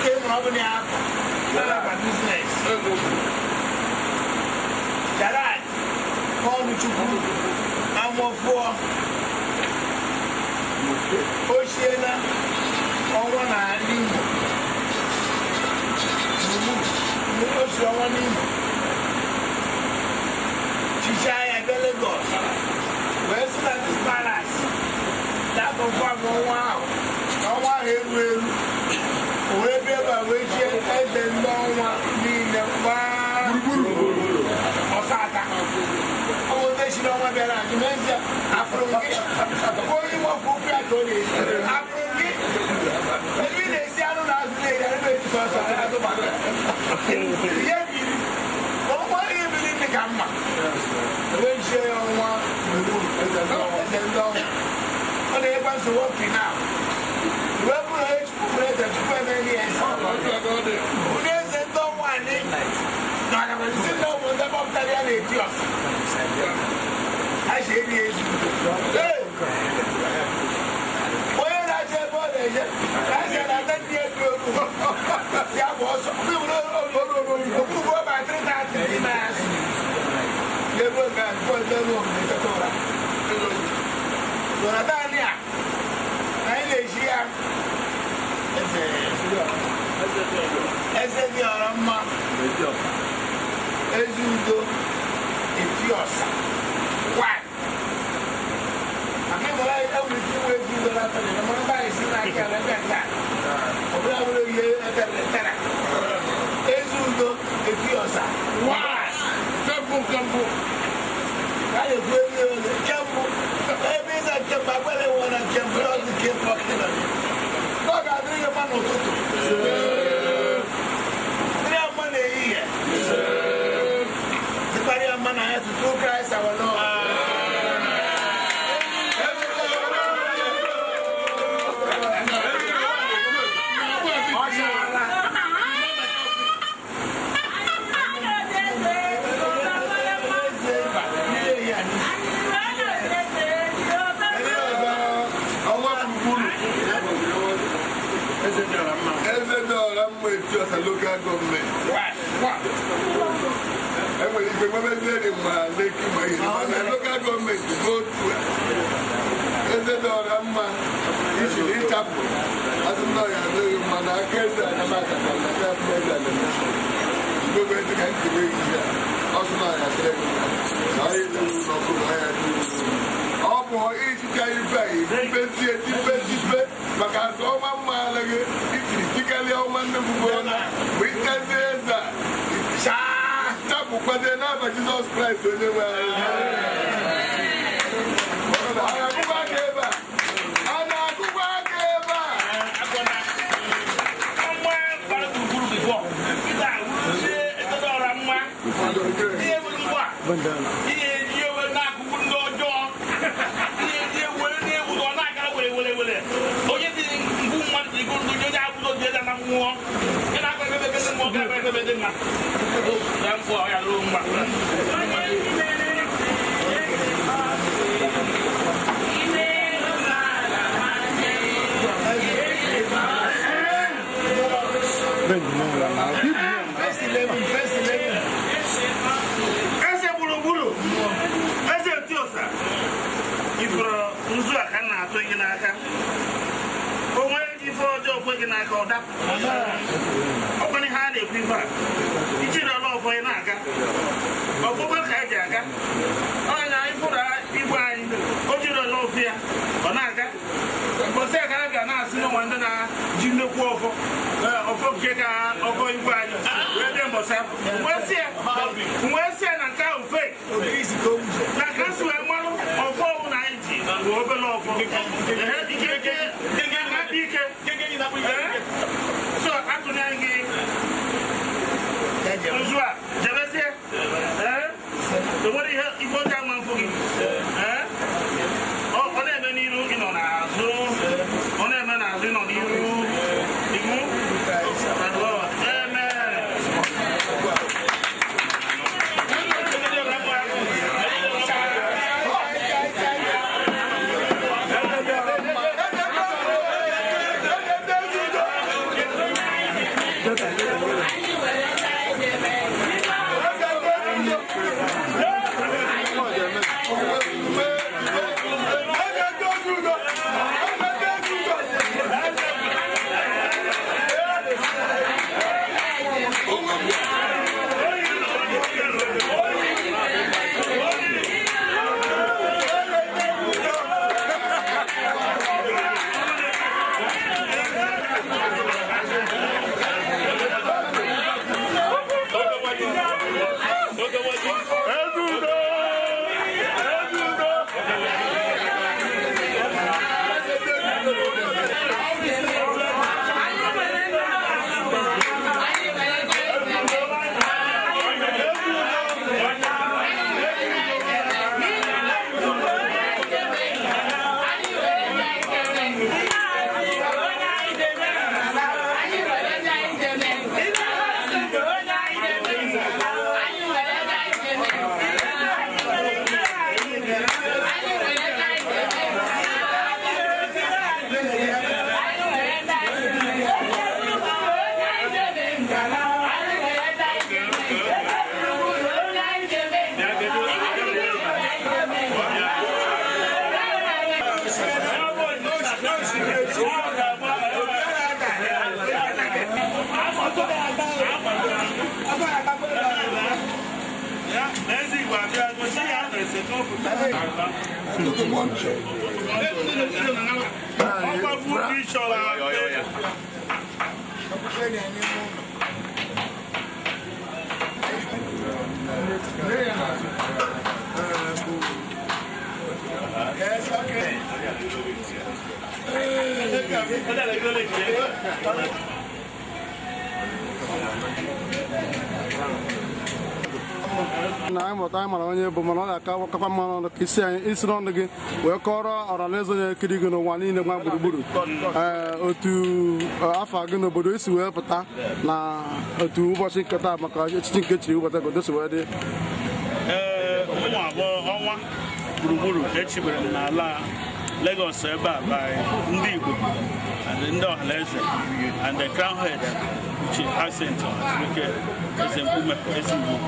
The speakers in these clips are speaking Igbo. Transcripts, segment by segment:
came from Albania yeah. for business. Charad, call me to group. I'm one for Oceana, on one island. Mo lọ sí ọwọ́ ní ṣiṣẹ́ ẹgbẹ́ Lagos wẹ́ẹ́ sílẹ̀ ní Palace lábọ̀ fún àwọn ọmọ wa ọmọ wa eru eru wetie ɛbɛ nnɔnwa ni ne paa buruburu ɔsaata ɔwɔ tɛsi n'ɔnwa biara dimensia afuronke oyi wɔ fukui atoni afuronke ebi na esi anu na azu na eyari bɛ ti sɔ sɔ ɛna to ba lɛ yɛ biri ɔnwa yɛ biri ni ka ma wetie ɔnwa ɛsɛ nnɔnwa ɔna yɛ kpa so wɔ kina. ntaleɛ na ɛti ɔse ahyɛ ɛdi ɛsu wɔyɛ na akyɛ bɔɔl ɛyɛ ahyɛ na atati ɛdu ogu si abɔ ɔsɔ mi wuro ɔlɔlɔ okuru bɔ ba tiri ta ti di na ɛsi yɛ bɔ nga bɔɔl ɛdɛ nu ɔmu ɛkɛtɛ ɔra ɛlɔ yi wɔn ata. ọ̀sà wá. àmì ìmọ̀lá yìí ẹ̀wù ní ìwé bí ìwé látọ̀ lẹ́yìn ọmọ bá yìí sí náà kí ẹ̀rẹ́ bẹ̀ ta ọ̀bí àwòrán yìí ẹ̀kẹ́ lẹ̀ tẹ̀rẹ̀. èzù ndo èfi ọ̀sà wá. man and earth through Christ our Lord. Eze dọ̀ọ̀rọ̀ mma etu ọ̀sán local government. Wa wa. the Babazeri ma Leki ma Yoruba na local government go to eze dị ọra mma ichiri ịchapụ azụmta ya adịghị mma na aka eze anamaka na nata mmezi animation mgbe ezi eji na na na a ibezie jibe ndị na eze a Ukwete na ba Jesus Christ onye nwe anyị. a. A na-agụba aka a. Mma gbara gburugburu bifọ. Ịba wuru ndị etodo ọra mma. Ihe bụ bedeng nga yan po ay alung bakla nke ka ọkọ igwe anyị wee mbọsa na nke ahụ fake na ka si wee marụ ọfọ ọwụ na anyị ji bụ obere ọfọ ike so gị nzu a jebezie enwere ihe ọkọ̀ fún kí ìṣọ̀ra pé. Yes, okay. Hey. na anyị mụta anyị mara onye bụ mana ọ ga-akakwa mma ka isi anyị isi n'ọnụ gị wee kọrọ ọranaeze na-ekiri gị n'ụwa niile gba gburugburu ee otu afọ gị n'obodo isi wee pụta na otu ụbọchị nketa maka echichi nke chiri ụbọchị obodo si wee dị eh, ụmụ abụọ ọnwa gburugburu echibere m n'ala Lagos ebe a ndị Igbo ndị ọhanaeze and the crown head nke Ezigbo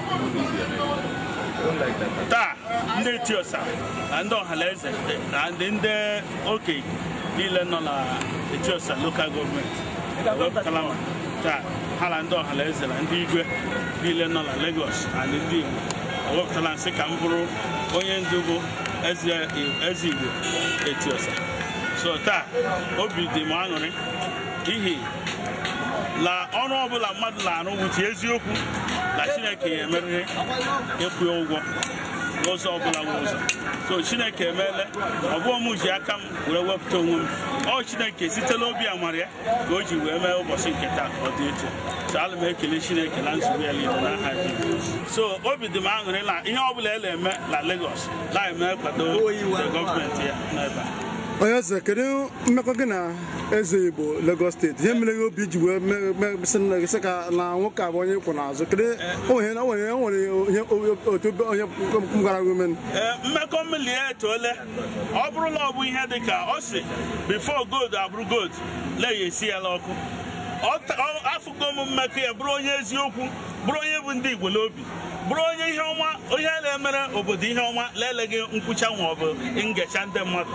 taa ndị tiosa na ndị ọhanaeze na ndị oke niile nọ na etiosa lokal gọọmenti wepụtala taa ha na ndị ọhanaeze na ndị igwe niile nọ na Lagos na ndị Igbo ewepụtala nsị ka m bụrụ onye ndu bụ eze Igbo etiosa so taa obi dị m aṅụrị n'ihi na ọrụ ọbụla mmadụ na-arụ wụchi eziokwu na chineke ya emeriri ịkwụ ụgwọ n'ụzọ ọbụla n'ụzọ so chineke emeela ọbụọ m ji aka m wee wepụta onwe m ọ chineke sitela obi amara ya ka o ji wee mee ụbọchị nke taa ka ọ dị etu so ala m ekele chineke na nzube ya niile n'aha so obi dị m aṅụrị na ihe ọbụla e na-eme na Lagos na-eme kwado gọọmenti ya n'ebe a onye eze kedu mmekọ gị na eze igbo Lagos steeti ihe mere gị obi ji wee sị ka na nwoke abụ onye kwụ n'azụ kedu onwere otu onye gwara gị ume e, mmekọ mmiri ya etoole ọ bụrụla ọ bụ ihe dị ka ọ sị before gold abụrụ gold leya esi ya n'ọkụ afụgo m mmekọ ya bụrụ onye eziokwu bụrụ onye bụ ndị igbo n'obi bụrụ onye ihe ọma onye na-emere obodo ihe ọma leleghị nkwụcha nwa ọ bụ ngecha ndị mmadụ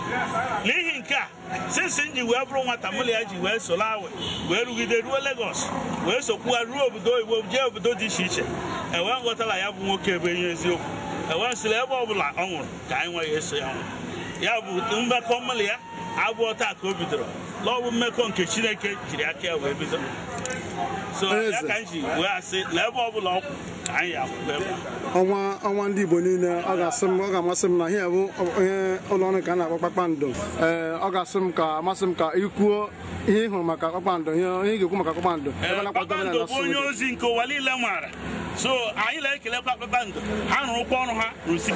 n'ihi nke a sinsi m ji wee bụrụ nwata miliya ya ji wee soro wee rugide ruo Lagos wee sokwuwa ruo obodo oyibo jee obodo dị iche iche ewee nghọtala ya bụ nwoke e ebe enye eziokwu ewee nsịla ebe ọbụla ọ nwụrụ ka anyị nweghị eso ya nwụrụ ya bụ mmekọ mụlụ ya abụọ taa ka o bidoro n'ọbụ mmekọ nke Chineke jiri aka ya wee bidoro so ya ka m ji wee asị na ebe ọ bụla anyị akwụkwọ ebe ọnwa ọnwa ndị Igbo niile ọ ga-asị m ọ ga-amasị m na ihe bụ onye ọrụ ka a na-akpọ kpakpando ee ọ ga-asị m ka amasị m ka ikwuo ihe ị hụrụ maka kpakpando ihe ị ga-ekwu maka kpakpando kpakpando bụ onye ozi nke ụwa niile maara so anyị na-ekelekwa kpakpando ha rụrụkwa ọrụ ha rụsi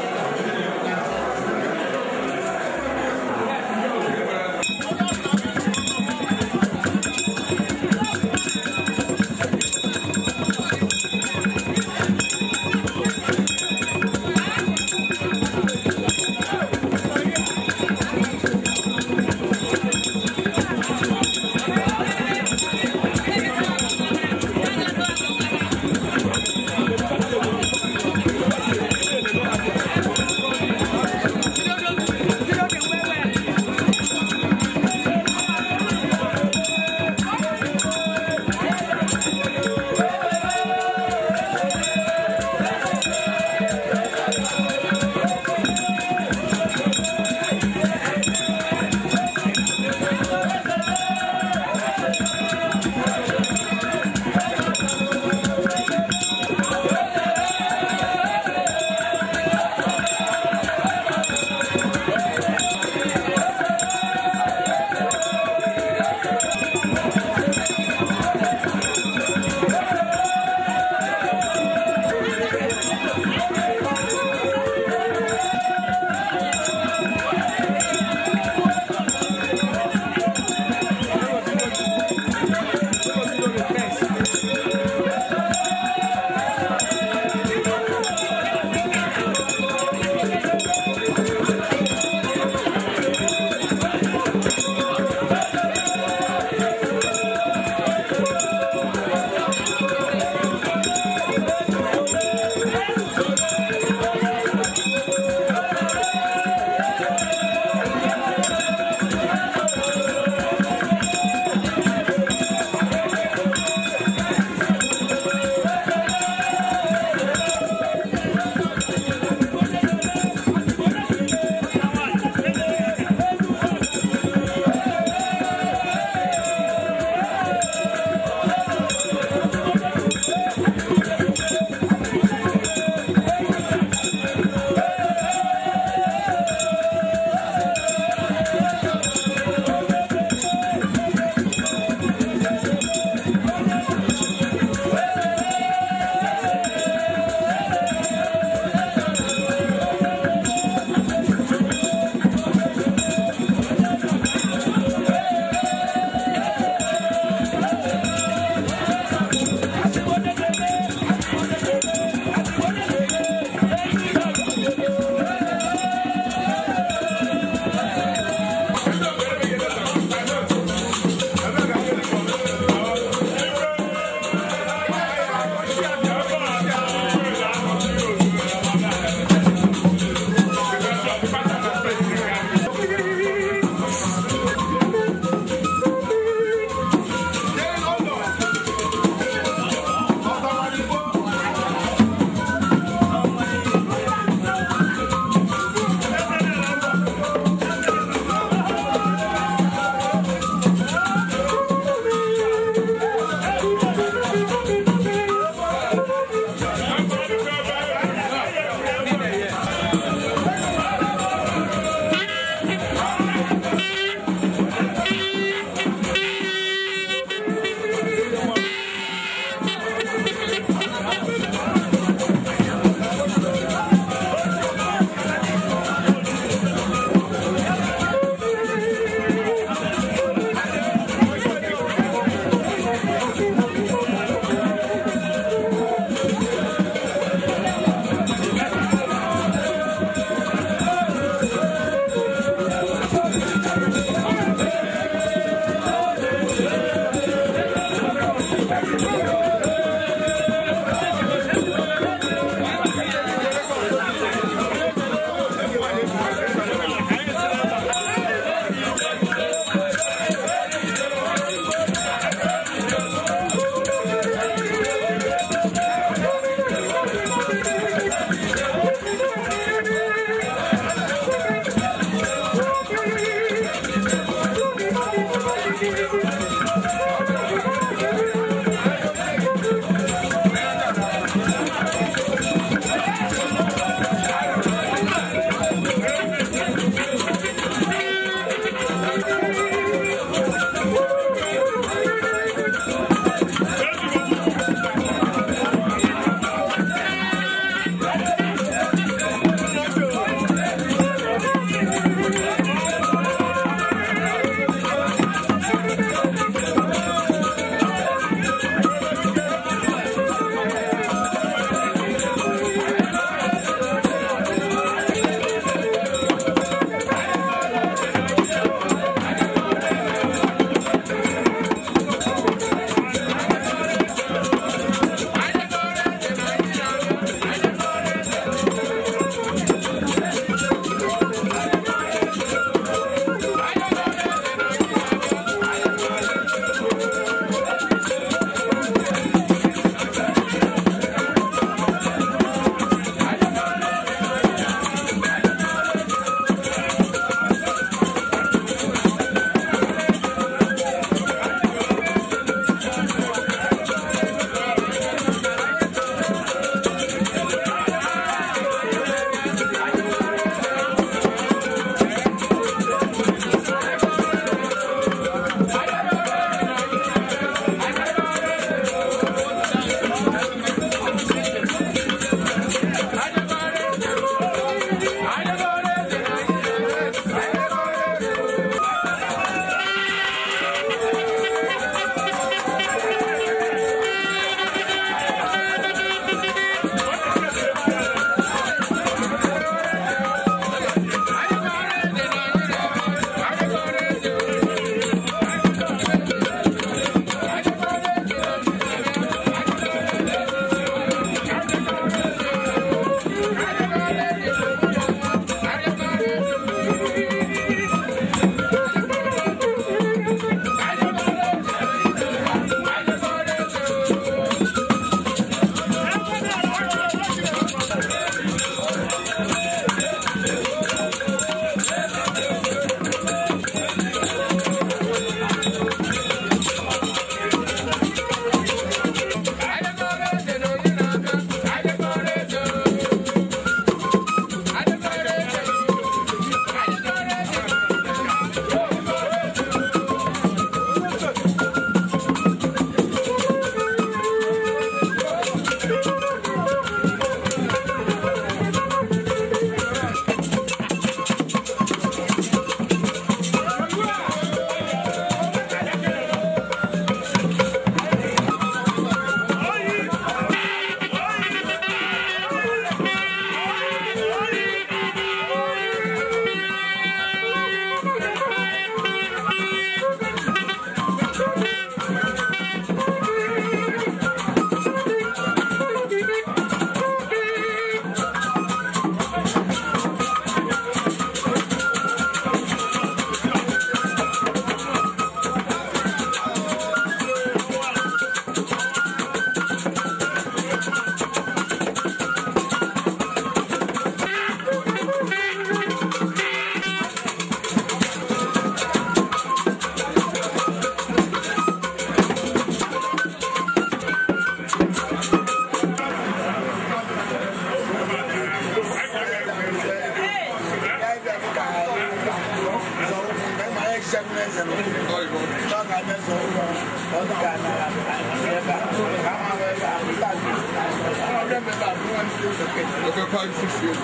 ọkọ kọ ní fífi o.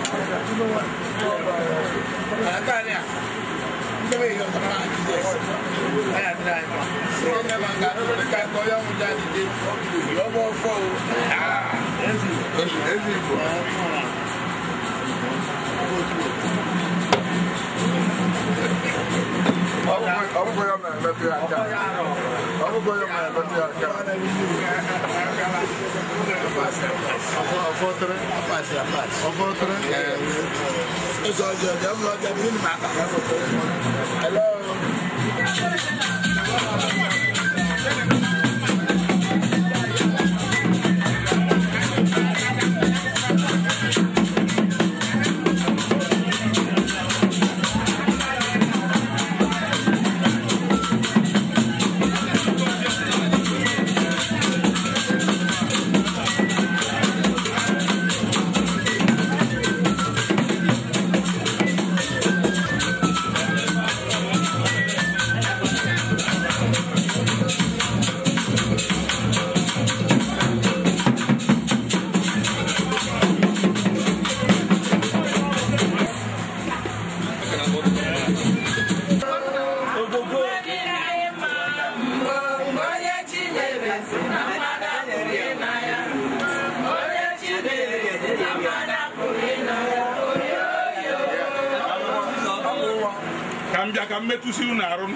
àlàkà ni à ń bẹ́ẹ̀ yọ ọ̀sán máa ti jẹ́ ẹ̀yà tí náà yẹn. ṣé ọ̀gá máa ń ga tó ní ká kọ́ yọ̀mú jáde dé yọ̀bọ̀ fọ́ o. ẹ̀sìn ẹ̀sìn ìbò ọkụkọ ya mere mmepe aka ọkụkọ ya mere mmepe aka ọfọtụrụ ọfọtụrụ ụzọ ọjọọ dị ọmụlọ ọjọọ dị mma aka hello mmetụsi unu arụ